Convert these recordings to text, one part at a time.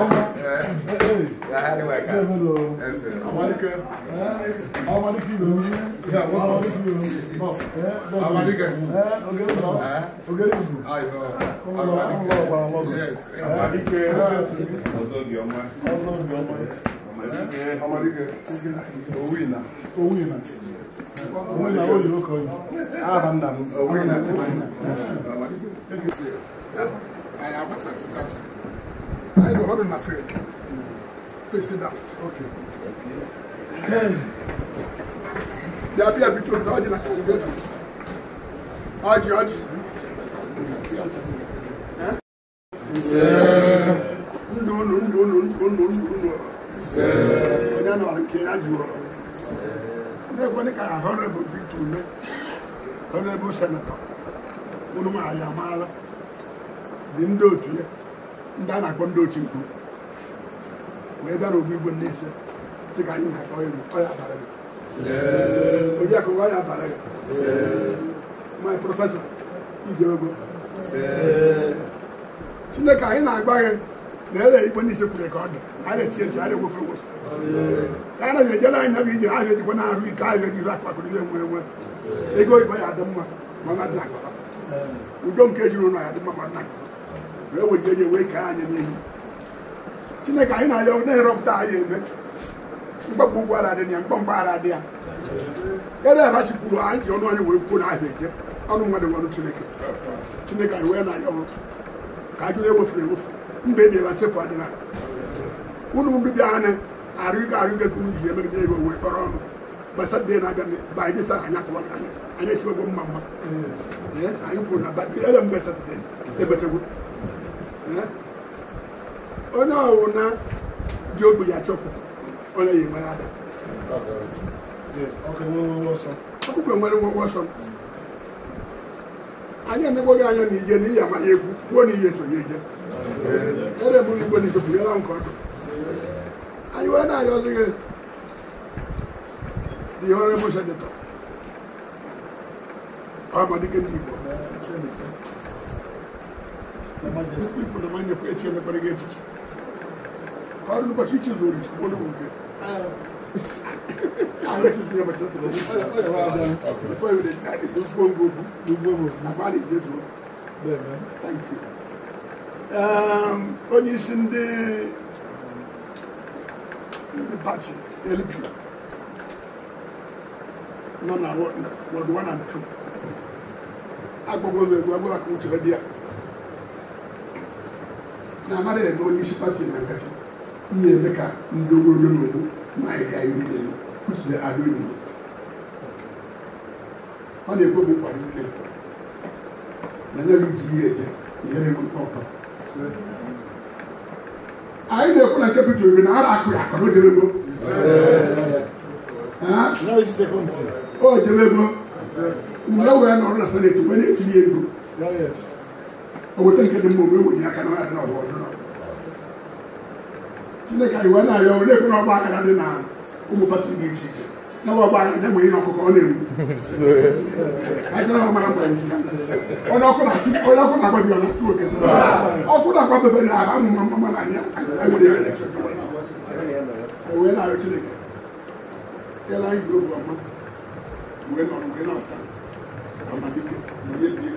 Ọmọ. Yàrá ni wẹ̀ka. Ṣé ìbúdó? Ẹsẹ̀. Amadike. Amadike ló ń yẹ. Amadike ló ń yẹ. Bọ́s. Amadike. Oge ìbò. Oge ìbò. Ayọ̀. Ọmọ lọ ọmọ ọgbà ọmọ ọgbà. Amadike. Ọzọ bí ọmọ. Ọzọ bí ọmọ. Amadike. Amadike. Owó ìnà. Owó ìnà. Owó ìnà ó yìí ó kọ yìí. Aha nna m. Owó ìnà. Owó ìnà. Amadike. Ayọ̀ abasa sikọtù. Nínú ọdún náà fèrè. President. Okay. Then, yàbí àbí tó ń ta ọdún náà fèrè bẹ́ẹ̀ náà. Ọjì ọjì. Ndò ndò ndò ndò ndò ndò ndò ndò. Onye nọ nke ya jụrụ. N'ekwe ndị ka Honorable Victor Ume, Honorable Senator, unu maara ya amaala, dị ndị otu ya. ndị a na-akpọ ndị otu nkwu wee bịa n'ogbu igwe ndị ise sị ka anyị na-akọ elu ọya abara gị oriakụ ọya abara gị my prọfesọ ijeogo chineke anyị na-agba gị na ele igwe ndị ise kwuru ka ọ dị na etinye ji anyị egwofe egwofe na ejere anyị ije ahụ ejikwa na-arụ ike ahụ ejiri akpakụrụ ihe nwe enwe ego ịkpa ya adị mma mana dị na udo nke jiri ụlọ ya dị mma mana dị na wee were nye wee kee anyị n'ihu chineke anyị na-aya na-erepụta anyị eme mgbagbu ụgwọ ara dị ya mgbamgba ara dị ya ere aghachipụrụ anyị ji ọnụ anyị wee kwuo n'ahịa eje ọnụ mmadụ nwanụ chineke chineke anyị wee na-aya ọrụ ka ajụ na-ewefere ewefu mba ebi ebe sefu adịla unu mbibi anyị arụ ga arụ gego ji na ebe wee kpọrọ ọnụ gbasa dị na-aga ba anyị sara anya kọwa anyị anyị echiwego mma mma anyị kwuru na ba mgbe satọde Eh? onye ọwụ na ji ya achọpụta onye yi mara ada ọkụkọ nwere nwekwe ọsọ anyị anya na ije n'ihi amaghị egwu kwuo na ihe chọrọ ije ere m igwe na ichepụ yara nke ọdụ anyị wee na-arịọzi gị the honorable senator amadike ndị da majestic da manya kuya ce na farge ciki har ba shi ce zuri ko da gobe a rashin ne ba ta tsoro da fa yi da dadi duk gongo duk gongo na ba ne bem zo thank you um isso onye isi ndị ndị pati lp não na wọdụ 1 and 2 agbagwo egwu agbagwo ka uche dị ya na amara ede onye isi pati na nkatị ihe eme ka ndị ogologo n'ugwu na ịga ihu niile kwuchide adịghị ọ na-ekwe m nkwa niile na nye gị ji ihe eje nyere m mkpọmkpọ anyị na-ekwu na kepital iri na ara akụrụ akọrọ jebego o jebego mgbe e wee nọrọ na seneti wee na-etinye ego ɛwɔ sɛ nka de mu omi wɔ nyina ka na ɔyɛ na ɔwɔ ka iwa na ayɛ ɔwɔ lɛkun na ɔba akana de na ɔmo pati ne ti ti na wɔn ɔba akana mo yi na ɔkɔkɔ ɔna ewu ayikana ɔmo akɔ ɛnti ɔna ɔkɔ na ti ɔna ɔkɔ na akɔ bi ɔna ti o kɛlɛ ɔkɔ na akɔ bɛbɛ na aba mo ma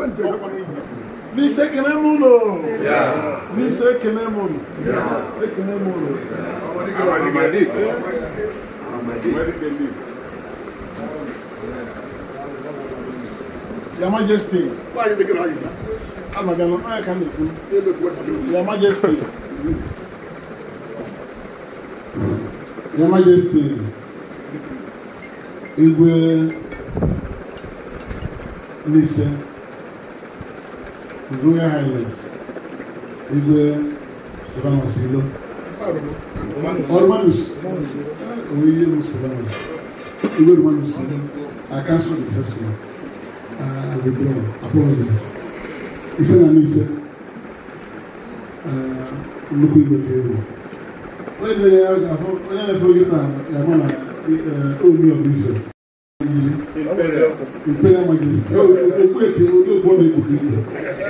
que ekwentị n'isi ekene m ụlọ n'isi ekene m ụlọ ekene m ụlọ Your Majesty. Why are you making argument? I'm not going to I can't do. Your Majesty. Your Majesty. Igwe Nise. His Royal Highness Igwe Seban Osilo. Ormanus. Oye Musaban. Igwe Ormanus Osilo. I cancel the first one. Uh, I withdraw. Apologies. He said, I mean, he said, uh, look at the table. When they are, when I forget that, I'm on a, uh, only a brief ìpínlẹ̀ mọ̀jẹ̀sì olóògbé èké olóògbé ọ̀nà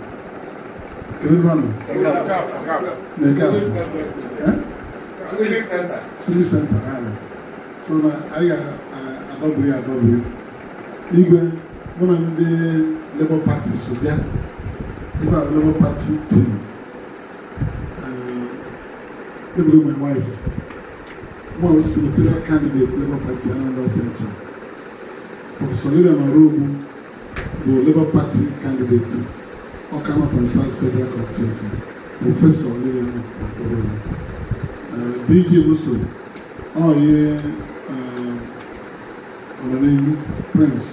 Ewébọ̀nù. Nìkàf. Civic center. Civic center ayọ. aí a ayọ adọbiri adọbiri. Igwe mụ na ndị Labour Party so bịa. Ibe Labour Party team. Uh, Eburu my wife. Mụ a osi imperial candidate Labour Party Anambra Central. Prọfesọ Lilian Orogwu do Labour Party candidato ɔka ma kansa federal constituency professor ɔlẹ́yìn ní ọ̀fọ̀rọ̀ rẹ̀ bg wusu a ɔyɛ ɔlọ́lẹ́yìn prince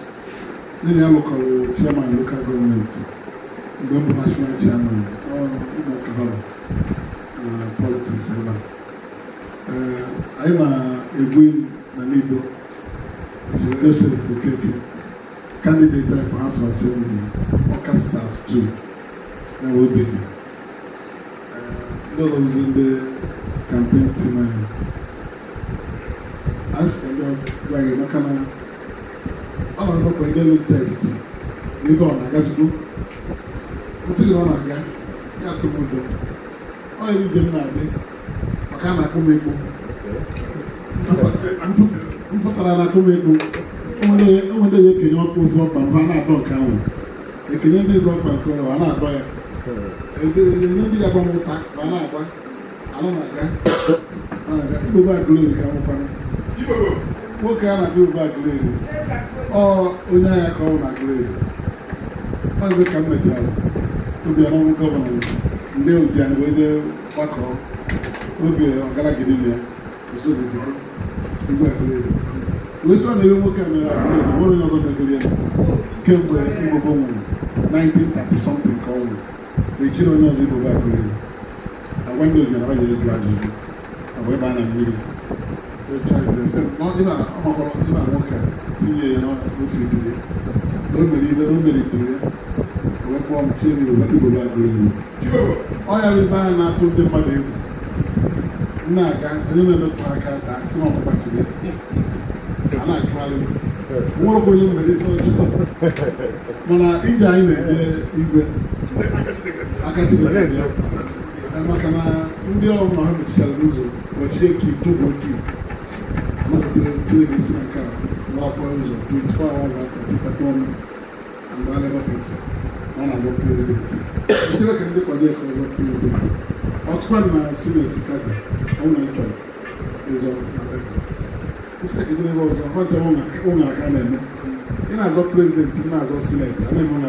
ne yɛ local chairman local government gbẹ̀mbọ̀ national chairman ɔmọ kahara na politics ɛla uh, ayé na egwin na nido jùlọ ɛsɛ fún kẹkẹ candidate for house of assembly ɔka start two. na wee None of ndị the campaign team anyị. As a job, maka na ọ na ndị elu test n'ihe ọ na aga O ọ na-aga, ya atụ Ọ yiri njem na-adị maka na akụ m ekpo. na akụ m ekpo. Enwere ya ekenye ọkpa mba na-adọ nke ahụ. Ekenye ndị ọkpa nke a na-adọ ya. ebe ndị ga-agba m ụta ma a na-agba ala na-aga na-aga ibobe agụleri ka nwoke a na-abịa ụba agụleri ọ onye agha ka ọ na agụleri ọzọ ka m obi ọrụ gọvanọ ndị ojian wee jee gbakọọ oge ya usoro igwe agụleri wee sọ na ihe nwoke a mere agụleri nwere onye ọzọ megoro ya kemgbe nwụrụ ejiri onye ọzọ ibobe agụ elu agwa ndị ebe a na mmiri ọmakọrọ ịba nwoke tinye ya n'ofe tinye na o mere ibe na o mere wee kpọọ m ọ ya bụ ife anya na-atụ ndị mmadụ egwu na-aga onye na-emetụ aka tinye a na-achụgharị onye ife mana ije anyị na-eje aka tụrụ ya maka na ndị ọrụ na ha mechichala n'ụzọ gbachie ka dobo dị malitere ntụrụ ga-esi na nke a ụzọ 24 hours after na-azọ prezidenti ntụrụ ka ndị kwado ka ọzọ prezidenti ọsụkwa na na-achọrọ ịzọ na na-eme na-azọ prezidenti na-azọ sineti a na-eme na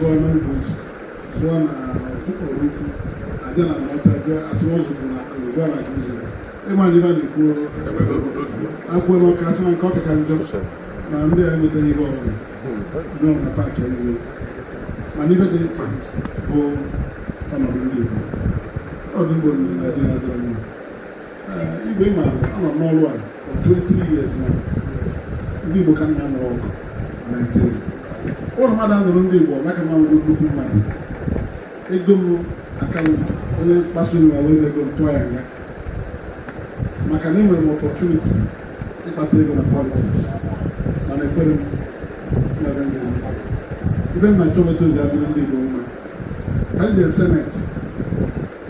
zụọ n'ugbo zụọ na na mọta bịa asị na e na ịma ndị na-ekwu akwụkwọ asị na nke ọkaka eh, na ndị a emetaghị ihe ndị na mana dị mkpa bụ ọnọdụ ndị Igbo na-adị adịrọ igwe ma anọ n'ọrụ a 20 na ndị Igbo ka ọgụ na ụlọ mmadụ anụrụ ndị Igbo ọbaka ma nwere nnukwu mmadụ ego m aka m onye mkpasu iwe were ego m tụọ ya nga maka na enwere m ọpọtuniti ịkpata ego na politiks mana ekwere m mere ndị ibe m na nchọmeta ozi adịrị ndị Igbo mma ka m jee seneti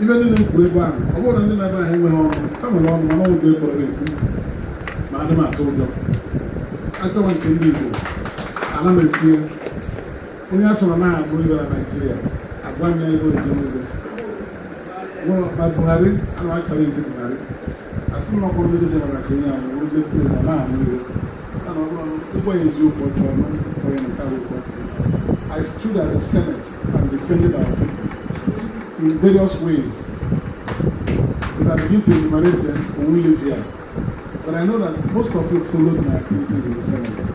ibe ndị na-ekwu ebe ahụ ọ bụrụ ndị na-ebe ahụ enweghị ọnụ ha nwere ọnụ mana ọnwụ ga-ekpọrọ ekwu ma adị m atụ ụjọ achọwa nke ndị Igbo ala ma etie onye asọrọ na agụ ibe na naijiria agwa m ya ebe obi n'ugbo ma buhari ana achọrọ iji buhari atụ na ọkpọrọ ndị dị maka onye ahụ ozi kwuru na na-ahụ iwe mana ọ bụrụ ụgwọ ya eziokwu ọjọọ na onye nke akwụkwọ I stood at the Senate and defended our people in various ways. If I begin to enumerate them, we will leave here. But I know that most of you followed my activities in the Senate.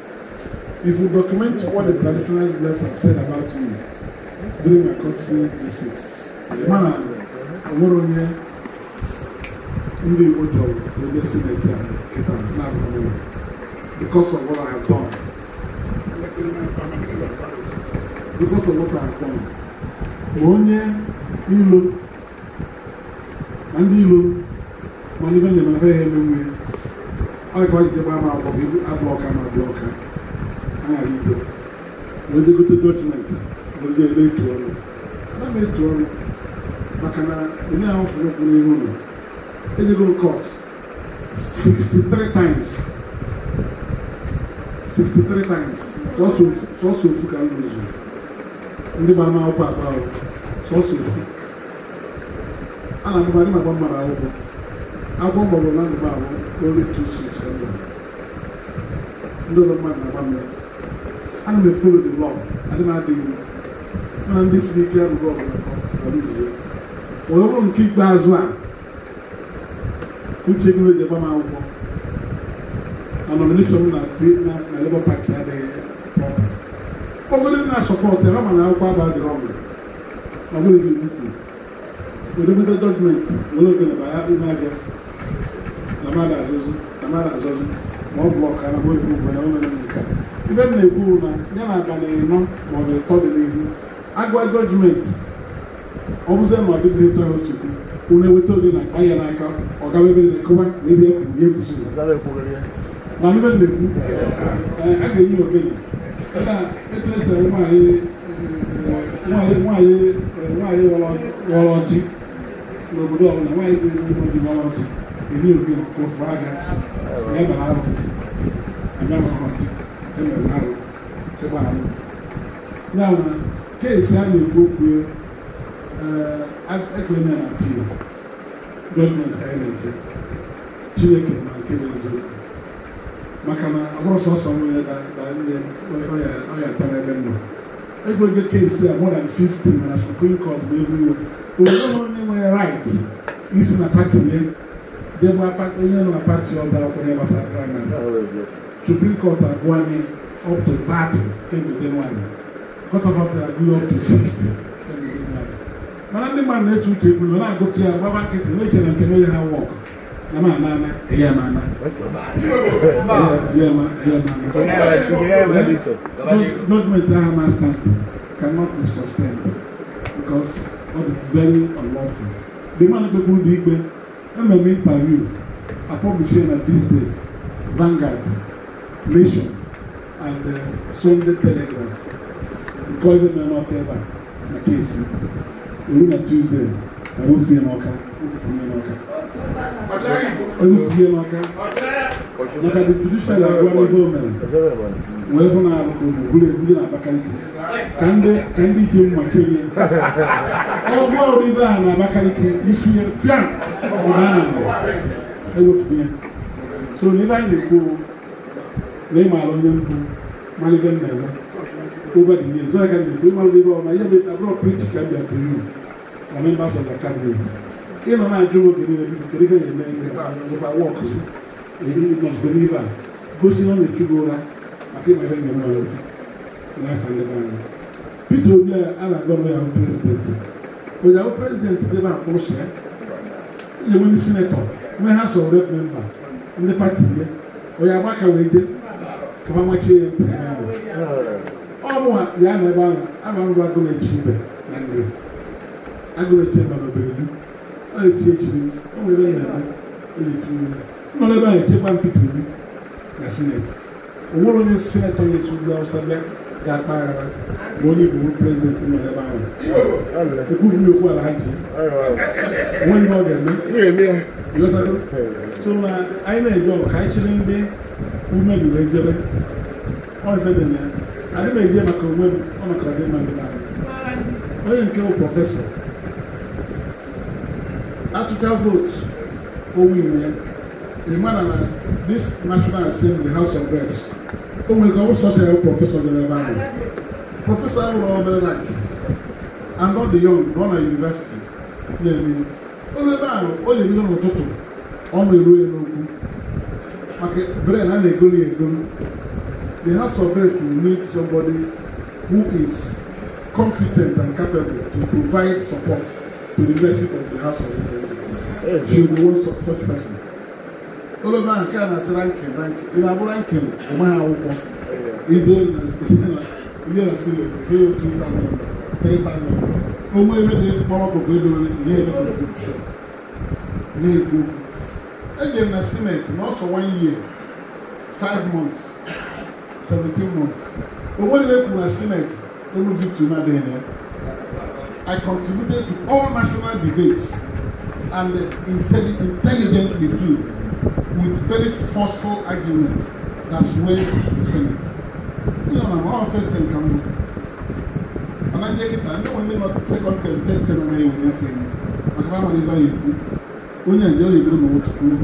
If we document what the traditional leaders have said about me during my courtesy visits, mana Oworonye ndị Igbo jọrọ onye sineti a kịta na-abụghị because of what I have done. Because of what I have done. Onye ilo na ndị ilo mana ibe njem afọ go emenwe ọ dịkwa jide gbaa m abụọ ka ma abụọ ọka na-ahịa ibe wedegote dọkụmenti oje ebe etu ọnụ na m etu ọnụ maka na onye ahụ fụrụ ụkwụ n'ihu ụlọ ejego kọt 63 times 63 times sọsọ ofu ka m rụzuru ndị gbara m akwụkwọ akpa ahụ sọsọ ofu a na-adịmadị maka mmadụ akwụkwọ akwụkwọ mgbọrọ na ndụ m ahụ only two six ndị ọzọ mmadụ na-agba mmiri ana m efolo the law adị m adịghị ndị siri ike abụghị ọbụla onye bụrụ nke ikpeazụ a uche gị eji agba m akwụkwọ na nomination m na na Labour Party adịghị ọbụrụ na sọpọtụ ya ma na akwụkwọ aba dị ọgụ ọ bụrụ ọrụ ukwu edemede jọjmenti nwere oge na baya ume abịa na mmadụ azụzụ na mmadụ azụzụ ma ọ bụ ọka na mmadụ ugwu na nke ibe m na-ekwu na ya na abalị ịnọ maọbụ ịtọ dị n'ihu agwa gọọmenti ọ bụzie na ọ dịghị ịtọ ya ochekwu unu eweta oge na akpa ya n'aka ọ gawa ebe na-ekọwa na ebe ya ya ekwusiri na ibe m na-ekwu eh, a ga-enye ogene ka e eh, n'obodo ọbụla nwaanyị ga-enye ụmụ ghọrọ ọjị ofu aga ya arụ ọjị ɛnɛnare kyɛbaano nama keesi a nekopue ɛkpɛ na apio gɔọmenti ayɛ n'egye chineke ma nke n'eziokwu maka na ọhụrụ sọsọ m ya da da ndị ọya ọya tara ebe nnọ egwege keesi a more than fifty mana supreme court bụ everywhere onye onye nwere right isi na pati ya debe onye nọ na pati ọzọ akwụkwọ ya gbasara praịmarị to bring Kota Agwani up to 30 Kengudenwani. Kota Agwani up to 60 Kengudenwani. Mana ndị mmadụ na-eche uche ekwuru na-agụ ka ya gbaba nkịtị na-eche na nke onye ha wọk na ma ana ana eya ma ana eya ma eya ma ana gọọmenti ahụ cannot be sustained because ọ dị very unlawful the man kpekwuru ndị ikpe ememe interview apọbishie na this day Vanguard Nation and uh, Sunday Telegraph because na n'ọka ebe a na keesi oru na Tuesday na wotie n'ọka wotie n'ọka wotie n'ọka maka the judicial agwa n'ihe o mere wee hụ na alụkọ ogbugbu ebuli na Abakaliki ka ndị ka ndị ji mma kelie ọgwụ ọrụ ibe a na Abakaliki isi ya tia ọ bụ na a na-agba ewefughị ya so n'ibe anyị na-ekwu lay maalo ñam du mali gan ne la ko ba di so kan ni ko mal di ro na yebe ta bro preach kan ya to you na men ba so da kan ni e no na jugo de ni bi ko ri kan ye men ni ba ni ba walk si e ni no so ni ba go si no ni jugo ra ati ma ren ma lo na fa ni ba ni pito bi ala go no ya president ko ya president de ba ko se ye mo ni senator we ha so rep member ni party ye o ya ba ka we ọmọ ọmọ ekyir ọmọ a yà nà ẹbá nà ama mbọ agolo ekyir bẹ nà ndé agolo ekyir bẹ bẹbẹ bi ọyọ ekyir ekyir ọmọ ẹbẹ yẹn nà ọyọ ekyir yẹn ọmọ ẹbẹ yẹn ekyir bá mpitiri bi na senate owurọ yẹn senate yẹn sùn gbà ọsàn bẹ gà kpa ara wọn yẹ bùrù president nà ẹbá nà ekú mi yóò kú alhaji wọn yẹ ọdẹ mi yóò sọ so na ayé náà yẹ dọ ká ekyir ndé women were jere wọn fẹ dẹ nẹ ade ma eje maka women wọn maka ade ma ade ma wọn yẹ nke wo professor atuka vote owi nìyẹ emma nana this national assembly house of reps o nwere ka ọ sọsọ ya professor dị n'ebe ahụ professor ahụ ọ bụla na and not the young nọ na university na-eme onye ebe ahụ o yiri n'ụtụtụ ọ ma eru ya n'okwu maka bread ha na-egoli the house of bread will need somebody who is competent and capable to provide support to the leadership of the house of representatives yes, she will be one such, such person olóògbé àti àná àti rankin rankin ìlàbọ̀ rankin ọmọ yà wọ́pọ̀ ìdè ìdè nà sílẹ̀ ìdè yóò tún tà mí tẹ̀ tà mí time member. de kpọ́lọ́pọ̀ gbẹ́dọ̀ ìdè yóò tún tà mí ìdè yóò tún tà mí ɛdi na cement na ɔsɔ one year five months seventeen months owó ni bẹ́ẹ̀ kú na cement tónú victory náà dẹ̀ yẹn I contributed to all national debates and intelli intelligently too with very forceful arguments that swayed the senate you know na my own first term kan mo anagye kita ndé wọn ní ma second term third term ẹ yẹ wọn yẹ kẹ ẹ mọ àgbà wọn ní báyìí kú onye a ọ na-eburu m otu kwuru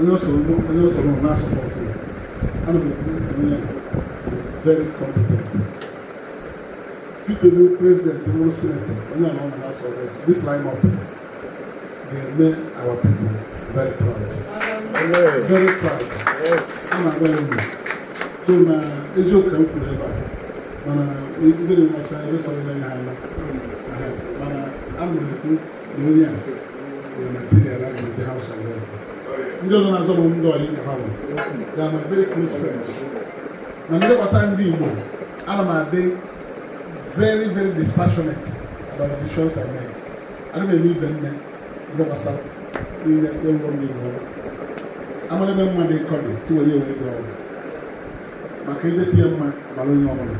onye ọsọ onye ọsọ m na m ekwu onye very competent Peter bụ president bụrụ senator onye a nọ na House of Reps this line up ga-eme our people very proud very proud ama agwa ya ugbu so na eziokwu ka m kwuru ebe a mana ibere nwata ebe sọrọ ya ha ala mana a m na-ekwu Hallelujah. We are material like in the house of God. Ndị ọzọ na-azọ bụ ndị ọyị na ha They are my very close friends. Na ndị ọkwasa ndị Igbo, ana m adị very very dispassionate about the decisions I make. Ana m eme ibe nne ndị ọkwasa niile ewuro ndị Igbo. Amara to mma dị kọrị tiwere ewere gị ọrụ. the ide tie mma abalị onye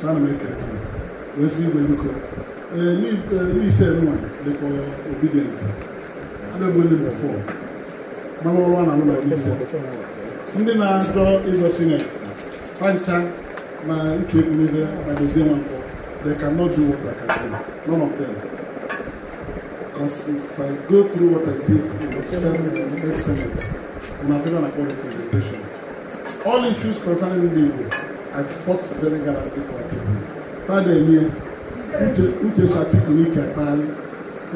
Trying to make it. We'll see sị igwe biko ndị eh, ise eh, nwa dịkwa obedient adịbụghị nọmba 4 mara ọrụ a na ụlọ ise ndị na-ajọ ịzọ sinet pancha na ike ekwumihe na dozie nwa mpọ they cannot do what I can do. None of them. Because if I go through what I did in the Senate, in the Senate, and I've even upon the presentation, all issues concerning the I fought very gallantly for Akebu. Father, uche shatik wike kpagharị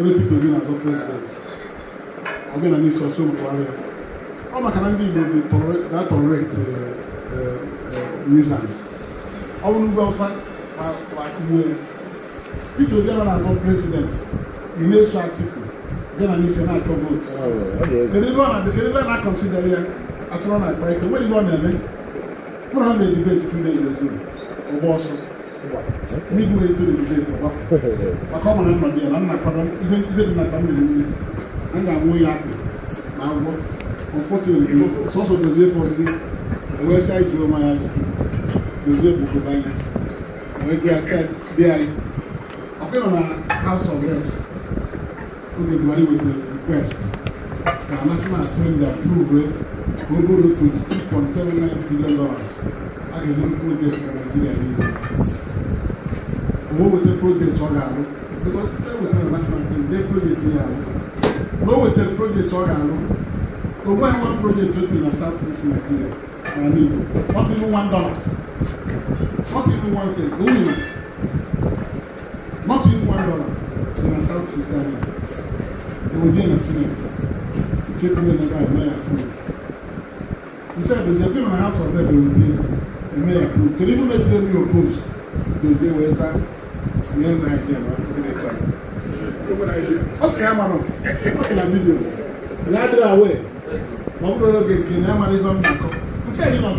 ebe pito obi na-azọ prezidenti ọbịa n'iso ọsọ Buhari ọ maka na ndị Igbo na-atọrọreti nuisance ọ bụrụ ugwu Awụsa akụgbuo ya pito obi na na-azọ prezidenti ị na-eso Atiku bịa na n'ise na-atọ vootu kedụ ebe ọ na-akọnsidere ya asịrọ na akpa ike nwere ihe ọ na-eme mụrụ ha na-edibeti two days ago ọgba ọsọ mi dun ye dole dole tɔgɔ a k'a ma ne nɔ diya la n na kɔdɔn i bɛ i bɛ na dam de wuli an k'a mun y'a kɛ m'a bɔ o fɔ ten o sɔsɔ dozie fɔ ten o bɛ se a o ma y'a kɛ dozie b'o ko ban yɛ o ye gbe a de a ye a ko nana house of reps o de buhari with the request ka national assembly approve o borrow twenty two point seven nine billion dollars a kɛ ni o de fɛ nigeria de ye wowete project ọ ga-arụ because ewetara matrasi ndị project ya arụ na o wetara project ọ ga-arụ o nweghị nwa project o na south east nigeria na igbo not even one dollar not even one cent o nwere not even one dollar dị na south east nigeria ewedie na senate nke kwuru na gaadị na ya kwuru nse edozie ebe na ha sọrọ ebe ewedie eme ya kwuru kedu ibu na-ejire mi opposed dozie wee zaa tinye na ihe ma gịnị ka ọ sị ya mara ọ dị na vidiyo ya adịrị awe ma ọ bụrụ oge nke na ya mara ife m na-akọ nsị na 2020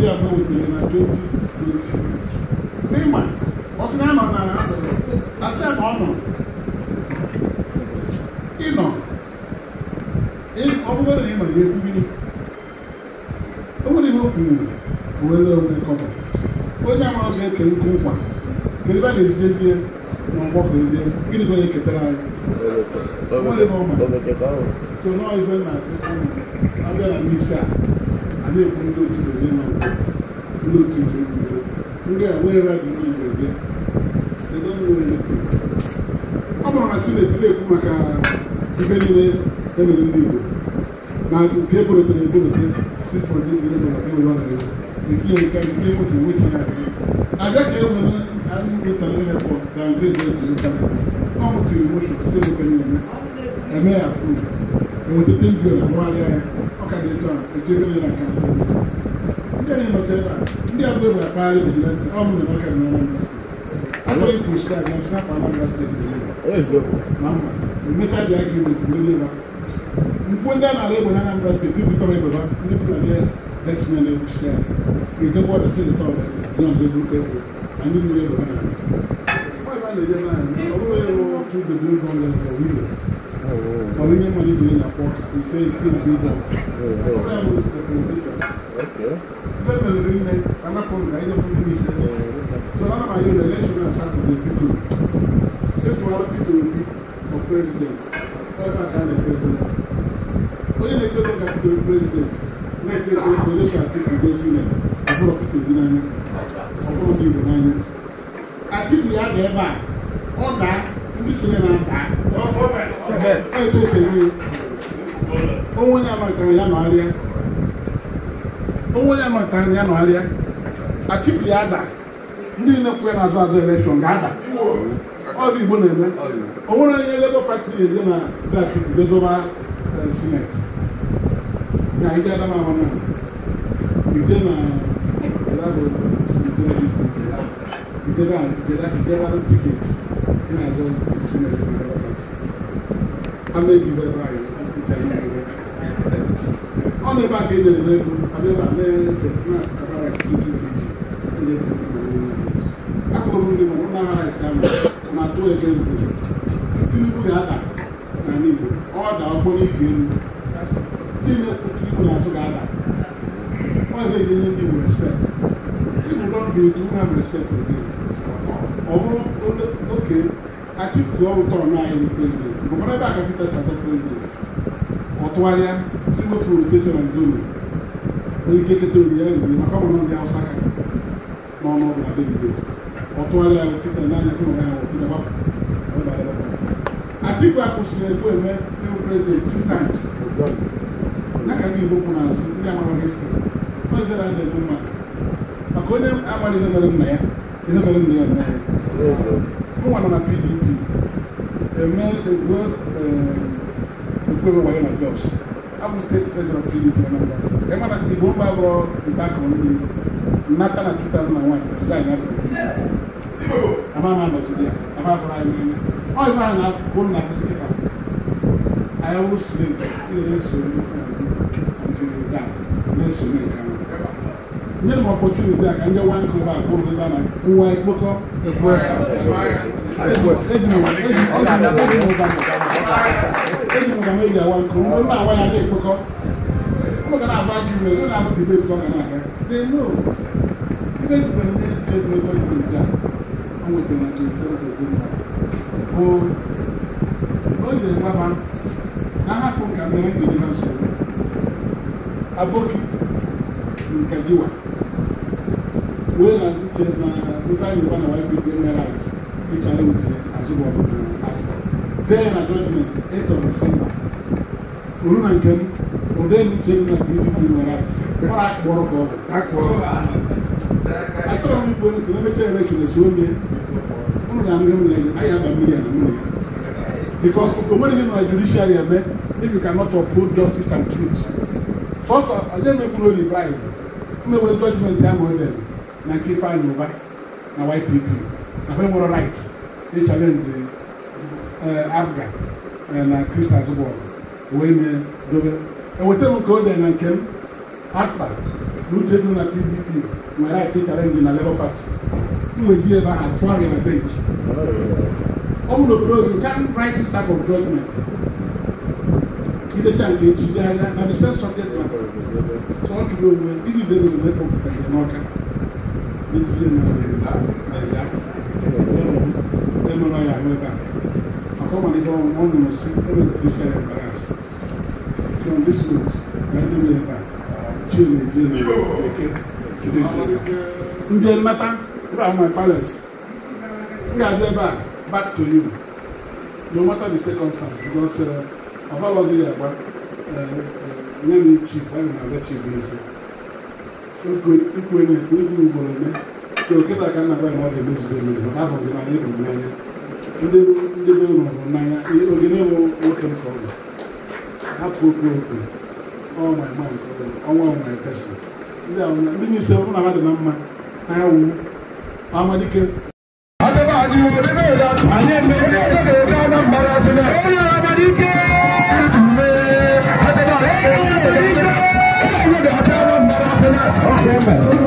n'ịma ọ sị na ya nọ na akụkụ asị ya na ọ nọ ịnọ ọ bụrụ na ịma ya ekwu gịnị o nwere ihe o kwuru o were onwe kọmọ onye amara ọ ga ndị gịnị bụ onye ketara anyị so nọọ ife na-asị abịa na n'isi a a na-ekwu ndị otu eje na ndị otu eje ndị a wee ra gị eje ọ bụrụ na sineti na-ekwu maka ife niile e mere ndị Igbo na nke eborotere eborote si ndị Igbo na ụwa na etinye nke nwoke abịa ka e nwere can you wait a minute for downgrade them to local government? Come to emotion, say local government. Ẹ̀mí ẹ̀ approve. Ẹ̀wọ̀n tètè ń gbèrò àwọn alẹ́ ẹ̀ ọ̀kadà ètò àwọn ètò ìgbélé náà kan àgbẹ̀ náà. Ndị ẹni nọtẹ ebe a, ndị abụọ ebe akpa ayé bìbí lẹ́ntẹ̀, ọ mụ na ọkà na Anambra steeti. Atọghị proscribe na snap Anambra steeti dị ebe. Ma mma, mmecha dị agreement n'elu ebe a. Mkpu ndị a na-ala egbe na Anambra steeti bikọrọ egbe ha, ndị Fulani Dutchman egwuchi ya. Ga-edekwa ọdachi dị tọọ, dị ọdụ egwu egwu anyị niile nọ na ọba na-eje be anyị ọ bụrụ ịrụ otu bedrum gọọmenti windo ọ bụ ihe mmadụ ji na-akpọ ọka ise iti na bidọ Ebe meriri nne anapụ m ka anyị jefu ndị ise so na anamaghị na elekshọn na satọde bido chefuara bido obi ọ prezidenti ebe a ka a na-ekpego onye na-ekpego ka bido prezidenti na-ekpego elekshọn atiku ga-esi net ọ bụrụ ọkụta obi n'anya ọ bụrụ ndị mmadụ ebe a ọ daa ndị siri na ada etesiri onwe amatara ya nọgharịa onwe onye amatara ya nọgharịa achịpụ ya ada ndị na ya n'azụ azụ elekshọn ga-ada ọzọ igbo na-eme onwere onye lebo pati na bịachukwu bezoba eh, sineti na ije na ije na ìjọba ìjọba ló tíkẹ̀tì ní àjọ ìsinmi ẹ̀fọ́ ìjọba pàtì amẹ́bí bẹ́ẹ̀ báyìí ìjà ní ẹ̀rẹ́ ọ̀nà ìbá kejì ẹ̀rẹ́ mẹ́kú abẹ́bà mẹ́rin kẹ̀kẹ́ abára ẹ̀sìn tó tún kejì ẹ̀yẹ tó tún kejì ẹ̀yẹ tó akọ̀rọ̀ mú ni mọ̀ ọ̀nà ara ẹ̀sìn àmọ̀ mà tó ẹ̀kẹ́ ẹ̀sìn Tinubu yà dà n'ala Igbo ọ̀dà ọkpọrọ ike elu niile Tinubu na-asụ ga-ada ọ ga-enye ndị Igbo respect if you don't do it have respect for them Atiku ọwụtọ ọnụ anyị bụ prezident gọvanọ ebe a ka Peter Shatto prezident ọ tụgharịa si n'otu rotation and zone onye ike keta ori ya ori maka ọmụmụ ndị Hausa ka n'ọnụ na delegates ọ tụgharịa Peter n'anya kụ ya ọ Peter gbapụ Atiku akwụsịrị ekwu eme ewu president two times n'aka ndị Igbo kwụ n'azụ ndị amara histrị first day na-adị mmadụ maka onye amaghị ihe mere nna ya ihe mere nna ya nna ya wọn nana pdp ẹmẹ egbe egbe bẹ wọlé na jos abu state treasurer pdp anambra state ẹ mana ìbò ń bá wọ ìgbà kan ní nata na two thousand and one resign afọ a máa ma lọ sí a máa fọra ẹni ẹni ọ yìí máa na bọ́ọ̀lù na fi síkà ayáwó sílẹ̀ kí lè sọ ní fún mi until you die lè sọ ní nǹkan mi. Nyẹ́ ní opportunity àkànjẹ́ one cover àkóró nígbà náà nwa ekpokọ efu eji m ọgama eji awa nkụ ndị mma awa ya dị ekpokọ ụlọ ga na-agba gị iwe ụlọ ahụ dibeti ọ ga na-aga dị no ebe ejibere ndị dibeti n'ebe dibeti a o nwetara na jesi oge dị mma bụ ọ na-egbaba na ahapụ nka mere ndị dị na nsogbu aboki nka jiwa wey na do get na local yoruba na white people wey right wey challenge azubo na uh, act then na judgement eight of december oru na nkem ode ni kem na pdp na right mara akpọrọ ka ọ bụ akpọrọ asọrọ m igbo n'otu n'ebe chere eke na suo nye unu ga-amịrị m na anyị aba mmiri na nwunye because omeri gị na judiciary eme if you cannot uphold justice and truth first of all i dey make rule the bribe mmewere judgement ahụ ọ dere na nkefa yoruba na ypp na fẹ nwere right e challenge abga na krista azụbọl wee mee dobe eweta m ka o dee na nke m afta na uche dị na pdp nwere right challenge na labour party m wee ji ebe ahụ chụọ ya na bench ọ bụ n'obodo you can write this type of document? idecha nke echi dị anya na the same subject matter so ọ chụrụ onwe ndị ibe na-enwe kpọpụtara n'ọka ntinye na n'a ya ahụ ebe a maka ọmalite ọ nụrụ si na ndị nwe ebe a chie na eje na eke ndị m ga-abịa ebe a back to you no matter the circumstance because ya agba nye m chief na-abịa chief n'isi ikwenye ibi ugboro eme ka oketa ka nna gbaghị mmadụ emezuzo emezu maka afọ gị n'anya ịhụrụ n'anya ndị ndị be ụlọ hụrụ n'anya oge na-enwe nwoke nke ọbụla hapụ okwu okwu ọnwa ma nke ọbụla ọnwa ọnwa ekesi ndị ahụ ndị na-ese ọbụla ha dị na mma ha ya wuru amadike anyị eme ihe ọzọ ga-ede Anambra sị na onye g r a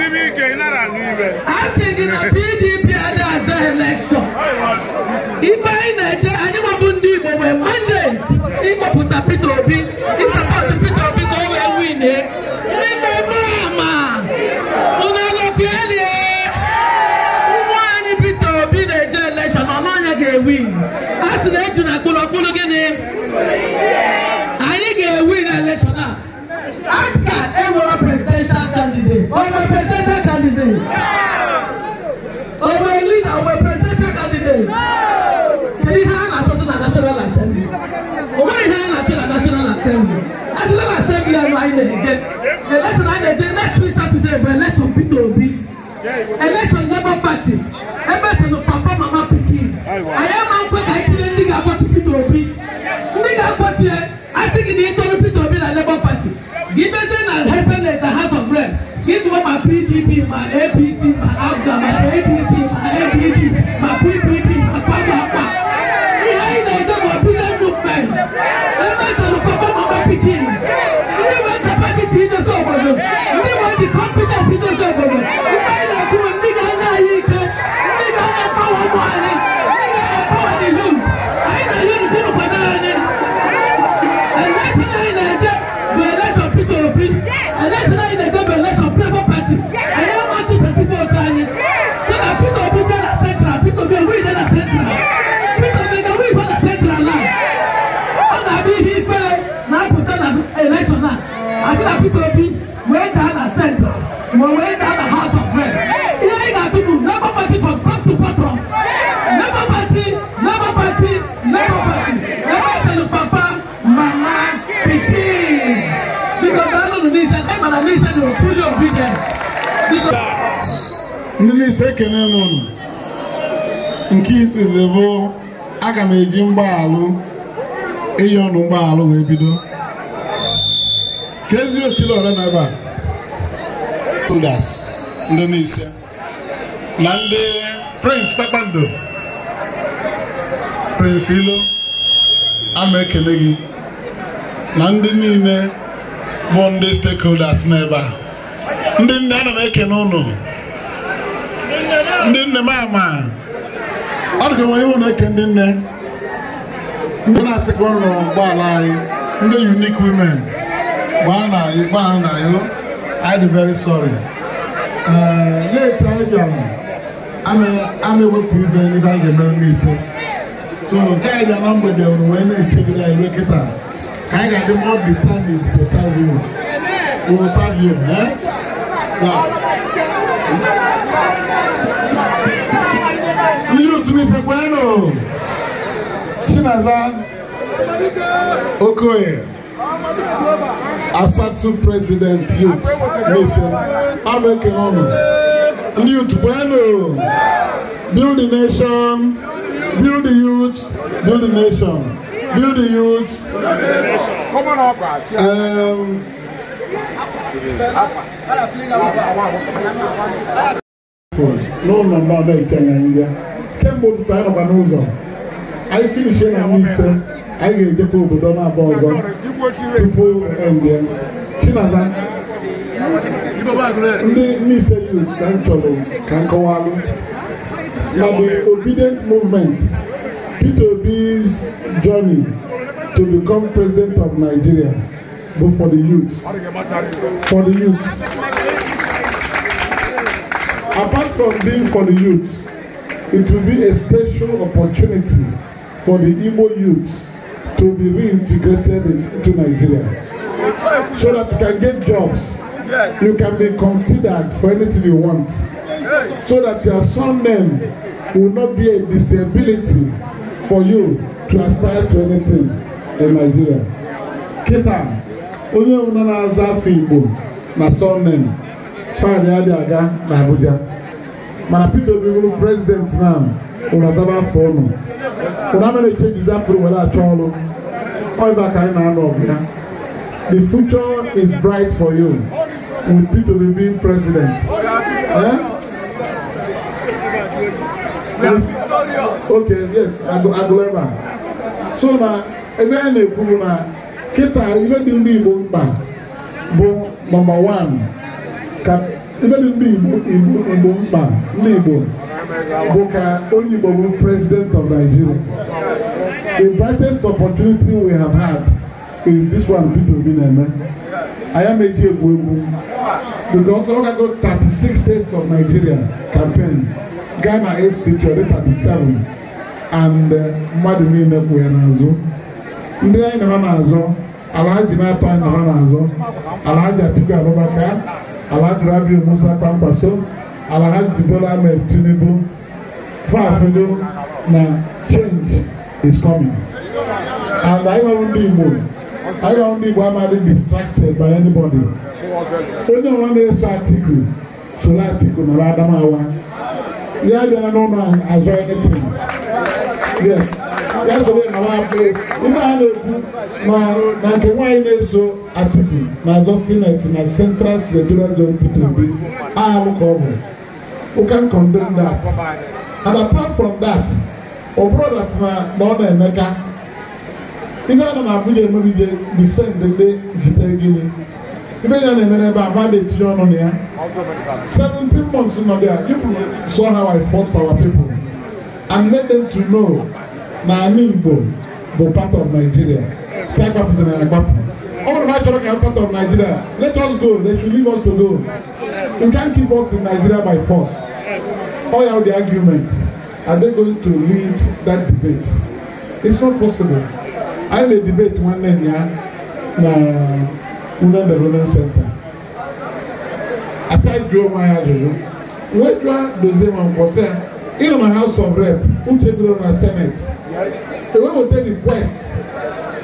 asị gị na pdp ada aza elekshọn ife anyị na-eche anyị nwabụ ndị igbo nwee mandate ịkpọpụta peter obi to Obi. Election Labour Party, Emerson no papa mama pikin. I am uncle I tell you nigga about Peter Obi. Nigga about you, I think in the interim Peter Obi na Labour Party. Give us an Hessen at the House of Rep. Give to my PDP, my AP, ekene m unu nke izizi bụ aga m eji alụ iyi ọnụ mgbaalụ wee bido ka ezi osiri ọrụ na ebe a ndị n'ise na ndị prince kpakpando prince ilo ama ekele gị na ndị niile bụ ndị stakeholders n'ebe a ndị nne ana m ekene ụnụ ndị nne m ama ọ dịka nwere iwu na-eke ndị nne ndị na-asịkwa nrọ ụgbọala anyị ndị unique women gbaa na anyị gbaa na anyị I am very sorry. Later, I'm ewepụ ibe ebe a ga-emere m ise. So nke anyị bịa na mgbede were wee na-echegide anyị kịta ka anyị ga-adị more determined to serve you. We will serve you. Eh? Yeah. Chinaza Okoye, Asatu President Youth, Ms. Abe Kenono. Youth, bueno, build the nation, build the youth, build the nation, build the youth. Come on up, um, no number, they can't get. Can't go to the time of an anyị si ise na nwa ise anyị ga-ejekwa obodo na-aba ọzọ tupu ende chinaza ndị mise youth ka m chọrọ ka m kọwalụ na the obedient movement peter obi's journey to become president of nigeria bụ for the youth for the youth apart from being for the youth it will be a special opportunity for the Igbo youths to be reintegrated into Nigeria so that you can get jobs. Yes. You can be considered for anything you want yes. so that your surname will not be a disability for you to aspire to anything in Nigeria. Kita, onye ọbụla na-aza afọ Igbo na surname faịlị adịghị aga n'Abuja mana Peter Obi bụrụ prezidenti na ụlọ adaba afọ ụnụ ụlọ amara echejizi afọ were achọ ọrụ ọiva ka anyị na-anọ ọbịa. the future is bright for you with Peter Obi being president eh? yes. okay yes agụleba so na ebe anyị na-ekwu bụ na kịta ibe dị ndị Igbo mkpa bụ nọmba 1 ka ibe dị ndị Igbo mkpa ndị Igbo Buka onye Igbo bụ president of Nigeria the brightest opportunity we have had is this one Peter Obi na-eme ayameji egwu egwu because ọ gago 36 states of Nigeria campaign Ghana FC chọrọ 37 and uh, mmadụ niile kwụ ya n'azụ ndị anyị na ha n'azụ alhaji na-atọ anyị ha n'azụ alhaji Atiku Abubakar alhaji Rabi Musa kpamkpaso. our Hajj Bola Ahmed Tinubu, Fafilo, na change is coming. And I don't need more. I don't need why distracted by anybody. Onye ọrụ na-eso atiku, soro atiku na Adamawa. Ya bịara n'ụlọ azụ anything. Yes. Ya soro na nwafọ. Ife a na-ekwu na na nke nwaanyị na-eso atiku na azọ sineti na central senatorial zone pdp ahụ ka ọ bụ. who can condemn that and apart from that ọbụrụ dat na na ọ na-emeka ife a nọ na abụja emebide defend ndị zitere gịnị ife ya na-eme n'ebe a va na-etinye ọnụ na ya Seventeen months nọ there you saw how I fought for our people and made them to know na anyị Igbo bụ part of Nigeria si agbapụzina ya agbapụ All of my children are part of Nigeria. Let us go. They should leave us to go. You can't keep us in Nigeria by force. All out the argument. Are they going to lead that debate? It's not possible. I had debate one day here na Unan the Ronan Center. Aside Joe Maya Jojo, Wedra Dozeman was there in my House of Rep, who take on our Senate. The way we take the quest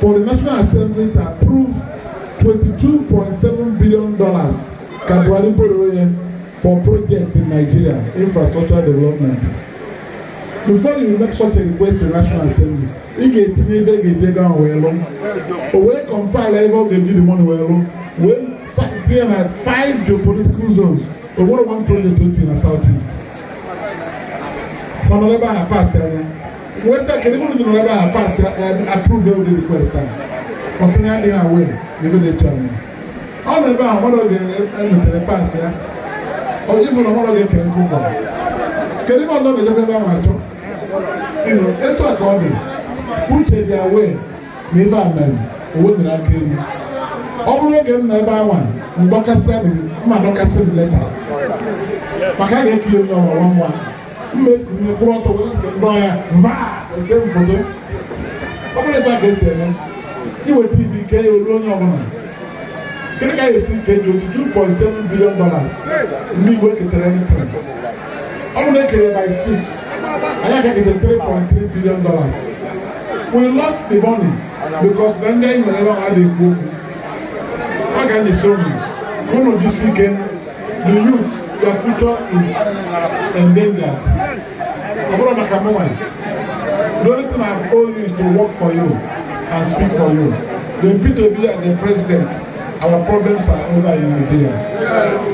for the National Assembly to approve $22.7 billion Kadwari Boroye for projects in Nigeria, infrastructure development. Before you make such a request to the National Assembly, ị ga-etinye ife ga-eje gaa wee lụ o wee kọmpaịla ebe ọ ga-eji dị mọnụ wee lụ wee tinye na 5 geopolitical zones o one project otu na southeast. Fọnọdụ ebe a na-apasị anya website kedu mụrụ jụrụ ebe a pass approve every request ahụ ọsịnya ọ ebe gị pass ya oji na ọhụrụ gị kere kedu na ebe ahụ achọ etu ka ọ dị uche dị awe na ebe a mere owedere aka ọ bụrụ oge m ebe ahụ mgbakasị adịghị maka ga-ekiri onye ọrụ nwa make me grow to lawyer vaa ɛsɛ nfoto ɔbɛnɛ gba kɛse ɛnɛ iwe tv kɛyɛ olu onye ɔbɛnɛ kini ka yɛ si kɛjɛ otu two point seven billion dollars mi iwe ketere ɛni tiri ɔbɛnɛ kɛyɛ by six aya kɛkɛtɛ three point three billion dollars we lost the money because then they never had a na How can they show enyeso Who ụnụ jisi ike the youth your future is endangered. Ọ̀gbọ́dọ̀ màkà mọ́wàá yìí. The only thing I've told you is to work for you and speak for you. The PTB as the president, our problems are over in Nigeria.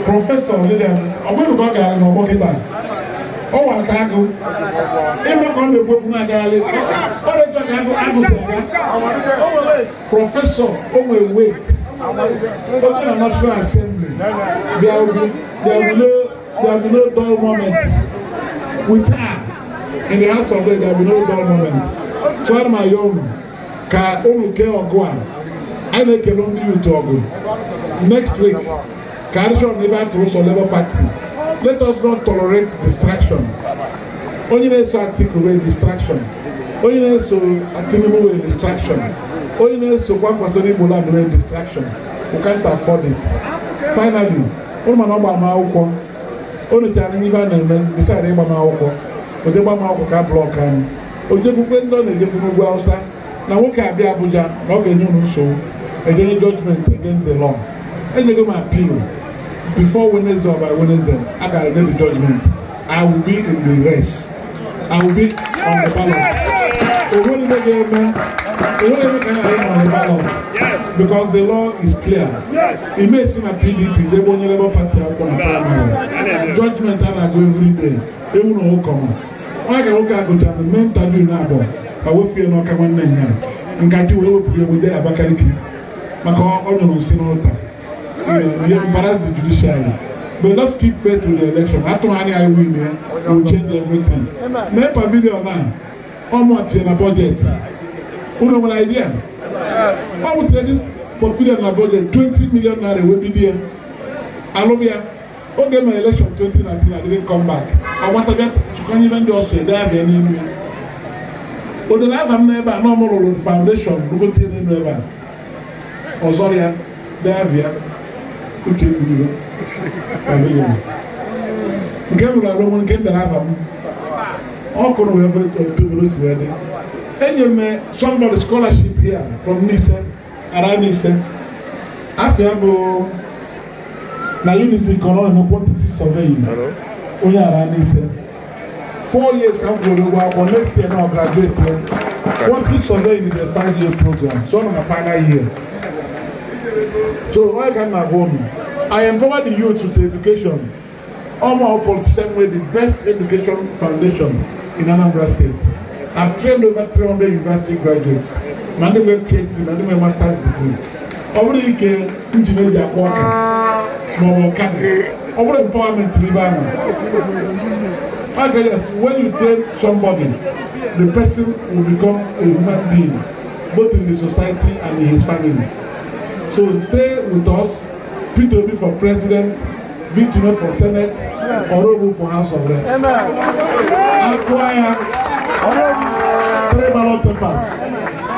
Professor William Ọ̀gbọ́dọ̀ kọ́ gàrí ní ọgbọ́n kíta. Ọ wà ká agụ. Ife kọ́ na ekwe kún agaghalị. Ọ dị ka agụ agụ sịrị ya. Prọfesọ o nwere weight. Open a national assembly. There will be there will no there will be no dull moment We her in the house of God. There will be no dull moment. So I'm my young ka ụmụke I a a na-ekele ndị yutu ọgụ next week ka arịchọn ebe a tụrụ sọ labour party let us not tolerate distraction Only na-eso atịkụ wee distraction onye na-eso Tinubu wee distraction onye na-esokwa Kwasoro Igbo land nwere distraction we can't afford it finally ụrụ mana ọ gbara m akwụkwọ o nyochara n'ihe a na-eme decide ịgba m akwụkwọ oje gba m akwụkwọ ka blọk anyị ojekwukwe ndị ọ na-ejekwu n'ugwu awụsa na nwoke abịa Abuja na ọ ga-enye ụlọ nsogbu ejenye judgment against the law enyego m appeal before Wednesday or by Wednesday a ga-enye the judgment I will be in the race I will be on the ballot onwere ihe ga-eme ka a ghara ịnọ n'balọt because the law is clear ime esi na pdp debe onye labour party akwụkwọ na praịmarị judgment a na-agụ every day ewu na ụkọma ọ ga nwoke agụcha na mme interview na abụọ ka wefie n'ọka nwanne nya ngaji wee wepụrụ ya abakaliki maka ọ nyụrụ nsị n'ụta ihe mbarazi judiciary But let's keep faith to the election. After iwu eh? change everything. video ọmụ tinye na bọjetị unu nwere idea ọmụ tinye dis pọtfilio na bọjetị 20 million naira wee bido ya alụm ya oge mere elekshọn 2019 adịghị come back agbataga chụkwanye ibe ndị ọsọ ede ahụ ya n'ime ya odele ava m n'ebe a na ọmụ faundeshọn foundation rugotie n'elu ebe a ọzọ ya davia oke gburu nke m rụrụ arụ nke m dara ava m ọkụrụ wee pimros wee dị enyere m somebody scholarship here from nise ara nise afia bụ na unisi kọrọ na quantity surveying onye ara nise four years come m the ụgwọ akwụkwọ next year na graduate quantity surveying is a five year program so on the final year so why can m na i empower the youth with education All my politician with the best education foundation in Anambra State. I've trained over 300 university graduates. Ma ndị nwere PhD ma ndị nwere master's degree. Ọ bụrụ ike njin eji akpọ ọka ma ọ bụ ọkada. Ọ bụrụ empowerment n'ebe ahụ. Okay, when you train somebody, the person will become a human being, both in the society and in his family. So stay with us, Peter Obi for president, Victor for senate, Orobo for house of reps. Amen choir. Three ballot papers.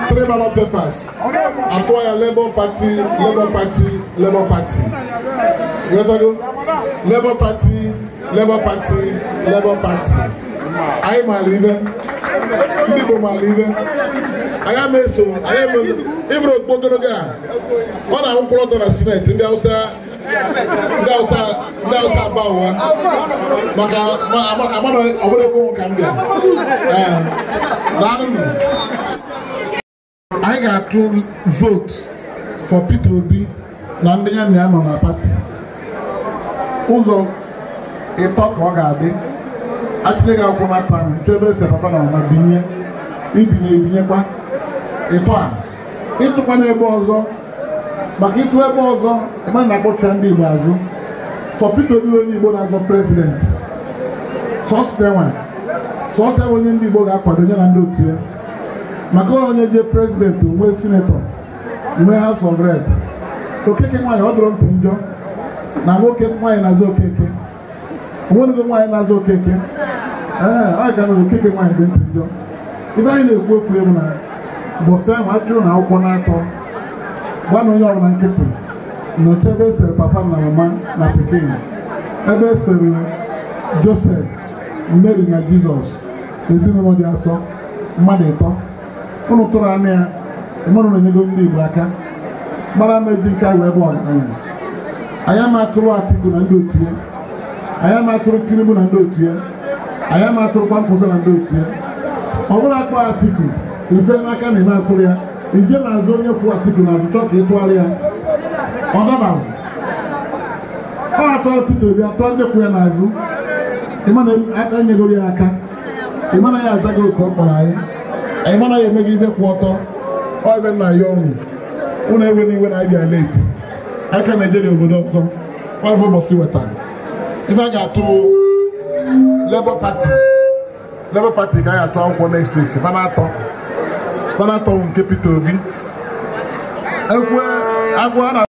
Three ballot papers. Acquire Labour Party, Labour Party, Labour Party. You understand? Labour Party, Labour Party, Labour Party. I am a leader. You people are leader. I am a so. I am a. Even a Bogoroga. All our plot on a Senate in the outside. ndị ụwa eh? maka ọbụla ka m anyị ga-atụ vote for Peter Obi na ndị ya na ya nọ na pati ụzọ ịtọ ka ọ ga-adị achịle gị akwụkwọ na taa chọọ ebe esi na binye ibinye ebinyekwa ịtọ a ọzọ maka ịtụ ebe ọzọ mana na-akpọcha ndị Igbo azụ Sọpịta Peter onye Igbo na-azọ prezident sọsọ e sọsọ ebe onye ndị Igbo ga-akwado ya na ndị otu ya maka onye je prezident nwee sinetọ nwee House of Rep okeke nwaanyị ọ dọrọ ntị njọ na nwoke nwaanyị na-azụ okeke onwenugo nwaanyị na-azụ okeke ee ọ ga nụrụ okeke nwaanyị dị ntị njọ ibe anyị na-ekwu okwu egwu na bọsa ahụ achụrụ na akwụkwọ na-atọ gbanụ onye ọbụla nkịtị nọcha ebe esere papa na mama na pikin ebe esere josef mary na jizọs ezinụlọ dị asọ mmadụ ịtọ ụnụ tụrụ anya ya ịmụrụ na-enyego ndị igbo aka gbara ama dị nke ahụ ebe ọgaranya anyị ama atụrụ atiku na ndị otu ya anyị ama atụrụ tinubu na ndị otu ya anyị ama atụrụ kwamkpụsị na ndị otu ya ọ bụrụ akpọ atiku ife n'aka na eme atụrụ ya ije na-azụ onye kwụ Atiku na azụchọ ka ịtụgharị ya ọ dabaghị ọ atọ Peter Obi atọ ndị kwụ ya n'azụ ịmana aka e, enyegoro ya aka ịmana ya azaghị otu ọ kpọrọ anyị ịmana ya emeghị ibe kwụ ọtọ ọ ebe nna ya ọnwụ unu ewe n'iwe na abịa leti aka na-ejere obodo ọzọ ọvụ ụbọchị wetara ife a ga-atụ Labour pati Labour pati ka a ga-atụ akwụkwọ next week mana atọ sanatɔw nkepito bi